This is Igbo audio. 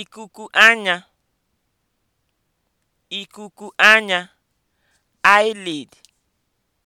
ikuku anya ikuku eyelid